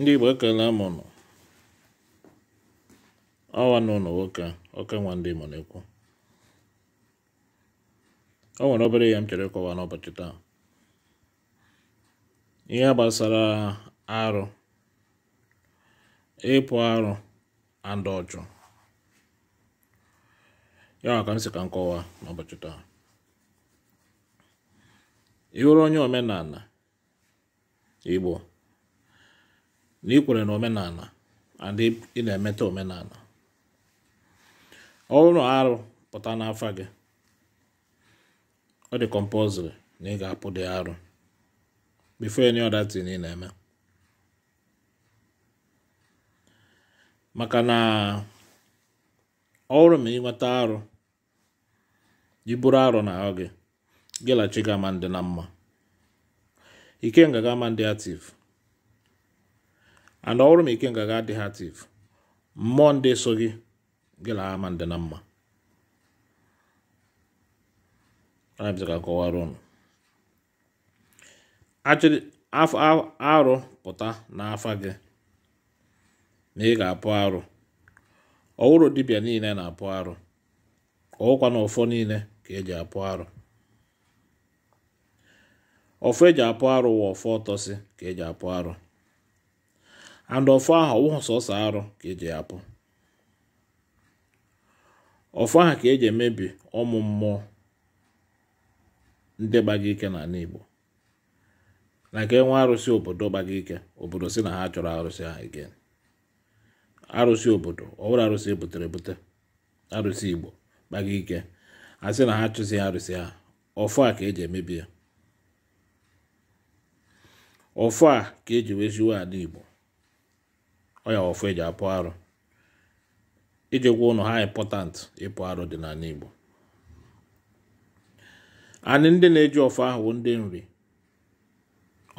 ndị Igbo ekele m unu ọwa na nwoke oke nwa ndị mụ na-ekwu o nwere obere ihe m chere ịkọwa n'ụbọchị taa ihe gbasara arụ ịpụ arụ and ọchụ ya ka m si ka n'ụbọchị taa ị onye omenala Igbo na ikwere kwere na omenala adị ị na-emeta omenala ọ arụ pụta n'afa gị ọ dị compulsory na ị ga-apụ dị arụ before any other thing ị na-eme maka na ọ bụrụ ma ịnweta arụ iburu arụ na ahụ gị gịlachi gama ama ndị na mma ike ga-ama ndị ative and ọrụ m ike ngaga adịghị ativ mmụọ ndị so gị gịlaa ma ndị na mma ka kọwara ụnụ achịrị arụ pụta n'afa gị na ị ga-apụ arụ ọwụrụ dibịa niile na-apụ arụ ọwụkwa na ụfọ niile ka eji apụ arụ ọfọ eji apụ arụ wa ọfọ ka eji apụ arụ and ọfọ ahụ ọwụghị sọsọ arụ ka eji apụ ọfọ ahụ ka eji emebi ụmụ mmụọ ndị gbaga ike ala Igbo na ka enwe arụsị obodo gbaga ike obodo si na ha chọrọ arụsị ha again arụsị obodo ọbụrụ arụsị ebutere ebute arụsị Igbo gbaga ike a sị na ha chụzi arụsị ha ọfọ a ka eji emebi ya ọfọ a ka eji weziwe ala Igbo ọnya ọfụ eji apụ arụ iji gwa ụnụ ha ịmpọtant ịpụ arụ dị n'ala Igbo anyị ndị na-eji ọfụ ahụ bụ ndị nri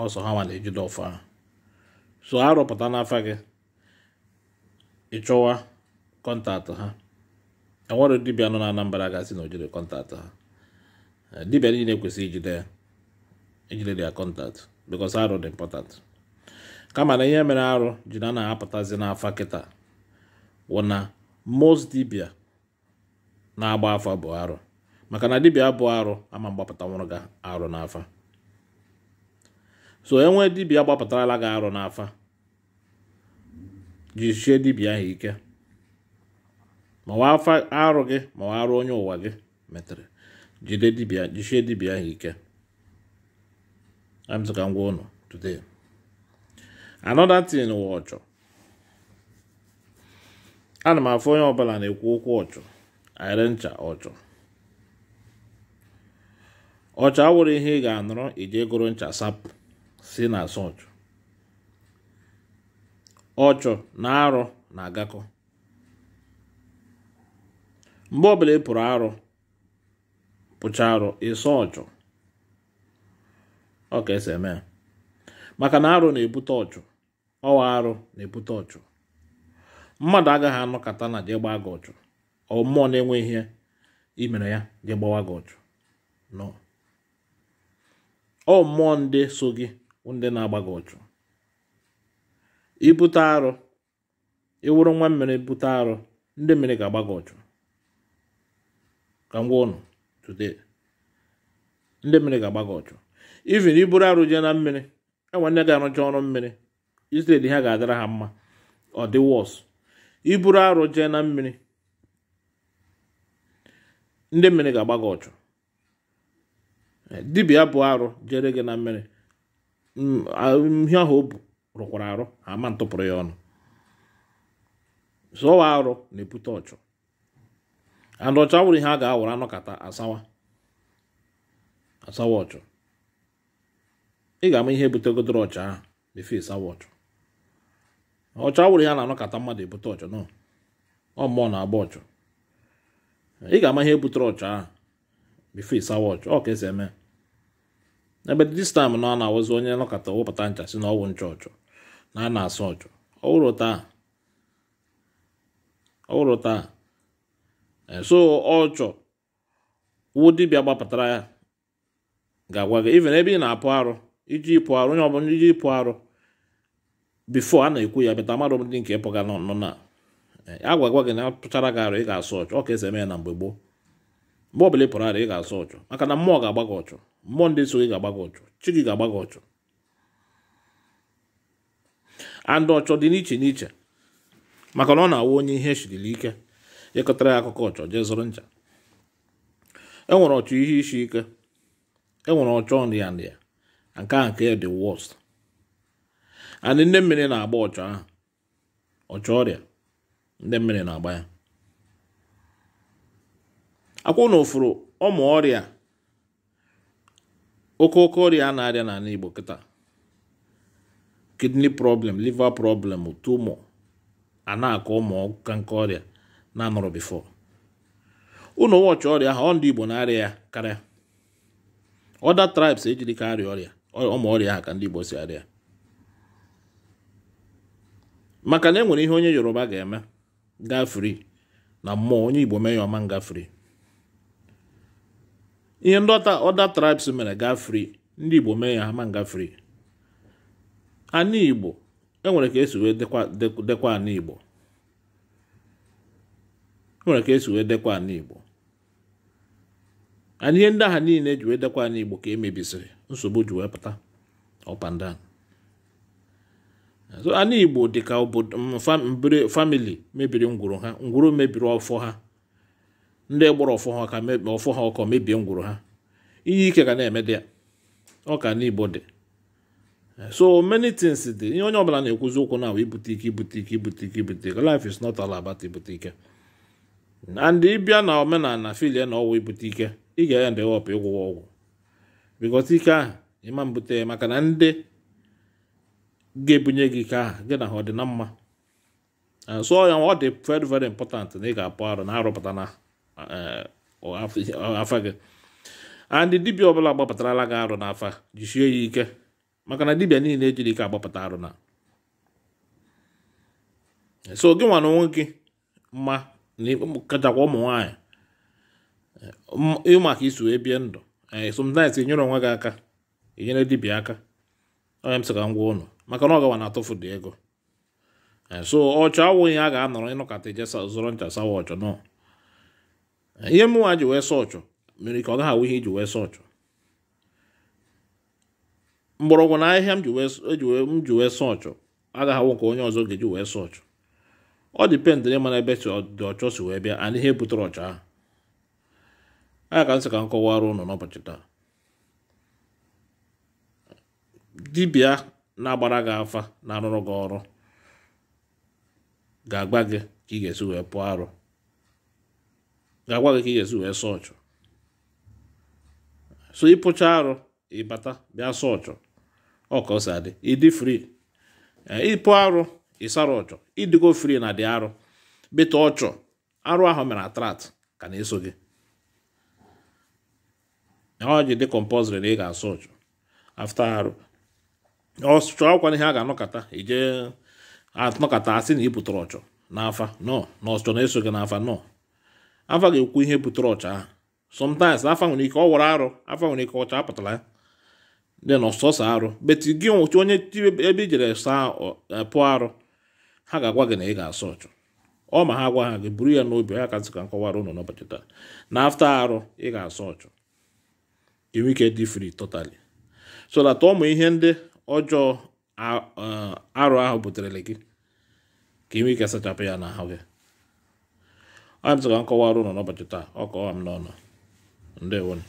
ọsọ ha nwa na-ejide ọfụ ahụ so ha rụpụta n'afa gị ịchọwa kọntaktị ha enwere dibịa nọ na Anambra gasị na ojide kọntaktị ha dibịa niile kwesịrị ijide ya ijide dia kọntaktị because arụ dị important kama na ihe mere arụ ji na na-apụtazi n'afa kịta wụ na most dibia na-agba afa bụ arụ maka na dibia bụ arụ ama mgbapụta nwụrụ ga arụ n'afa so enwe dibia gbapụtarala gị arụ n'afa jisie dibia ahụ ike mawa afa arụ gị mawa arụ onye ụwa gị metere jide dibia jisie dibia ahụ ike amzụka ngwa ụnụ today another thing wụ ọchọ. ana m afụ onye ọbụla na-ekwu okwu ọchọ. ayịrị ncha ọchọ ọchọ awụrụ ihe ị ga-anụrụ iji gụrụ ncha sapụ si na asọ ọchọ. ọchọ na arụ na-agakọ mgbe ọbụla ị pụrụ arụ pụcha arụ ịsọ ọka ọ ka maka na arụ na-ebute ọchụ ọwa arụ na-ebute ọchụ mmadụ agaghị anọkata na jee gbaa gị ọchụ ọ mmụọ na-enwe ihe imere ya jee gbawa gị ọchụ nọ ọ mmụọ ndị so gị ndị na-agba gị ọchụ ibute arụ ịwụrụ nwa mmiri bute arụ ndị mmiri ga-agba gị ọchụ ka m gwa ụnụ today ndị mmiri ga-agba gị ọchụ even iburu arụ jee na mmiri enwe nne ga-arụcha ọrụ mmiri Israel ha ga-adara ha mma ọ dị wọs iburu arụ jee na mmiri ndị mmiri ga-agba gị ọchụ eh, dibia bụ arụ jere gị na mmiri mm, ihe ahụ o bu rụkwara arụ ama ntụpụrụ ya ọnụ zụọ arụ na-ebute ọchụ and ọchụ awụrụ ihe a ga-awụrụ anọkata asawa asawa ọchụ ị ga-ama ihe butegodoro ọchụ ahụ efe sawa ọchụ ọchọ awụrụ ya na-anọkọta mmadụ ebute ọchọ nọ ọ mmụọ na-agba ọchọ ị ga-ama ihe butere ọchọ ahụ bifo ịsawa ọchọ ọ ka esi eme ebe dis time na ọ na-awụzi onye nọkata wepụta ncha si na ọwụ ncha ọchọ na a na-asụ ọchọ ọwụrụ taa ọwụrụ taa so ọchọ wụ dibịa gbapụtara ya ga-agwa gị even ebe ị na-apụ arụ iji pụ arụ onye ọbụla iji pụ arụ before a na-ekwu ya bịata mmadụ ndị nke ịpụga nọ nọ na Agwa-gwa eh, gị na pụchara gị arụ ị ga-asụ ọchụ ọ ka esi eme ya na mgbe gboo mgbe ọbụla ị pụrụ arụ ị ga-asụ ọchụ maka na mmụọ ga-agba gị ọchụ mmụọ ndị so gị ga-agba gị ọchụ chi gị ga-agba gị ọchụ andị ọchọ dị n'iche n'iche maka na ọ na-awụ onye ihe echirili ike ịkọtara ya akụkọ ọchọ jee zụrụ ncha enwere ọchọ ihe isi ike enwere ọchọ nrịa nrịa nke a nke dị worst and ndị mmiri na-agba ọchụ ahụ ọchụ ọrịa ndị mmiri na-agba ya akwụ na ụfụrụ ọmụ ọrịa oke oke ọrịa a na-arịa n'ala Igbo kịta kidney problem liver problem tumor a na-akọ ụmụ ka nke ọrịa na-anọrọ bifo ụnụ wọchị ọrịa ahụ ọ ndị Igbo na-arịa ya karịa other tribes ejiri ka arịa ọrịa ọmụ ọrịa ahụ ka ndị Igbo si arịa maka na enwere ihe onye yoruba ga-eme gafri na mmụọ onye igbo mee ya ọma ngafri ihe ndị ọda tribes mere gafri ndị igbo mee ya ama ngafri ana igbo enwere ka esi wee dekwa ana igbo enwere ka esi wee dekwa ana igbo ana ihe ndị aha niile ji wee dekwa ana igbo ka emebisiri nsogbu ji wee pụta ọpandan ala igbo dịka obodo mm, famili mebiri ngwuru ha ngwuru mebiri ọfọ ha ndị gbara ọfọ ha ka ọfọ ha ọkọ mebie ngwuru ha ihe ike ga na-eme dị ya ọka n'igbo dị so many things dị ihe onye ọbụla na-ekwuzi okwu na ibute ike ibute ike ibute ike ibute ike life is not all about ibute ike and ịbịa na omenala filie na ọgwụ ibute ike ị ga-aya ndị họpụ ịgwụwa ọgwụ bikọta ike ahụ ịma mbute maka na ndị ga-ebunye gị ka gị na ha ọ dị na mma eh, sụọ ya ọ dị very very important na ị ga-apụ arụ na-arụpụta na eh, afa gị andị dibịa ọbụla gbapụtarala gị arụ afa jisie ya ike maka na dibịa niile ejiri ike agbapụta arụ na so gị nwa na onwe gị mma kachakwa ụmụ nwaanyị ịmaka iso ebie ndụ eh, sometimes enyere onwe gị aka enyere dibịa aka onye m sị ka m gwa ụnụ maka na ọ gawa na-atụfudu ego eh, so ọchọ awụghị a ga-anọrọ ịnọkọta ije zụrọ ncha sawa ọchọ nọ eh, ihe mụnwa ji wee sọ ọchọ mere ka ọ gaghị awụ ihe iji wee sọ ọchọ mgbọrọgwụ na ahịhịa m ji wee sọ e ọchọ agaghị awụ nke onye ọzọ ga-eji wee sọ ọchọ ọ dipendịrị mana ebe dị ọchọ si wee bịa ana ihe butere ọchọ ahụ a ka nsị ka m kọwara ụnụ n'ụbọchị taa dibịa na-agbara gị afa na-arụrụ gị ọrụ ga agba gị ka ị ga-esi wee pụọ arụ ga-agwa gị ka ị ga-esi wee sọ so ịpụcha arụ ịbata bịa sọ ọchụ ọkọsi adị ịdị fri ịpụ arụ ịsara ọchọ ịdịgo fri na dị arụ bịta ọchọ arụ ahụ mere atrat ka na-eso gị ọ ji dị kọmpọzịrị na ị ga-asọ ọchọ. afta arụ ọchụ akwa ihe a ga-anọkọta ije anọkata asị na ị pụtara ọchọ n'afa nọ na ọchọ na-eso gị n'afa nọ afa ga-ekwu ihe butere ọcha ahụ sometimes afa nwere ike ọ wara arụ afa nwere ike ọcha apụtala ya dị na ọsọsọ arụ beti gị nwụchi onye ebe i jere saa e, pụọ arụ ha ga-agwa gị na ị ga-asọ ọchọ ọ ma ha gwa ha gị buru ya n'obi ha ka nkọwara ụnụ n'ụbọchị taa na afta arụ ị ga-asọ ọchọ enwe ike dị fri totally so that ihe ndị ọjọọ arụ ahụ buterele gị ka ị ike sachapụ ya na ya gị anyị ka nkọwa arụ nọ n'ụbọchị taa ọ kọwa m n'ọnụ ndewonu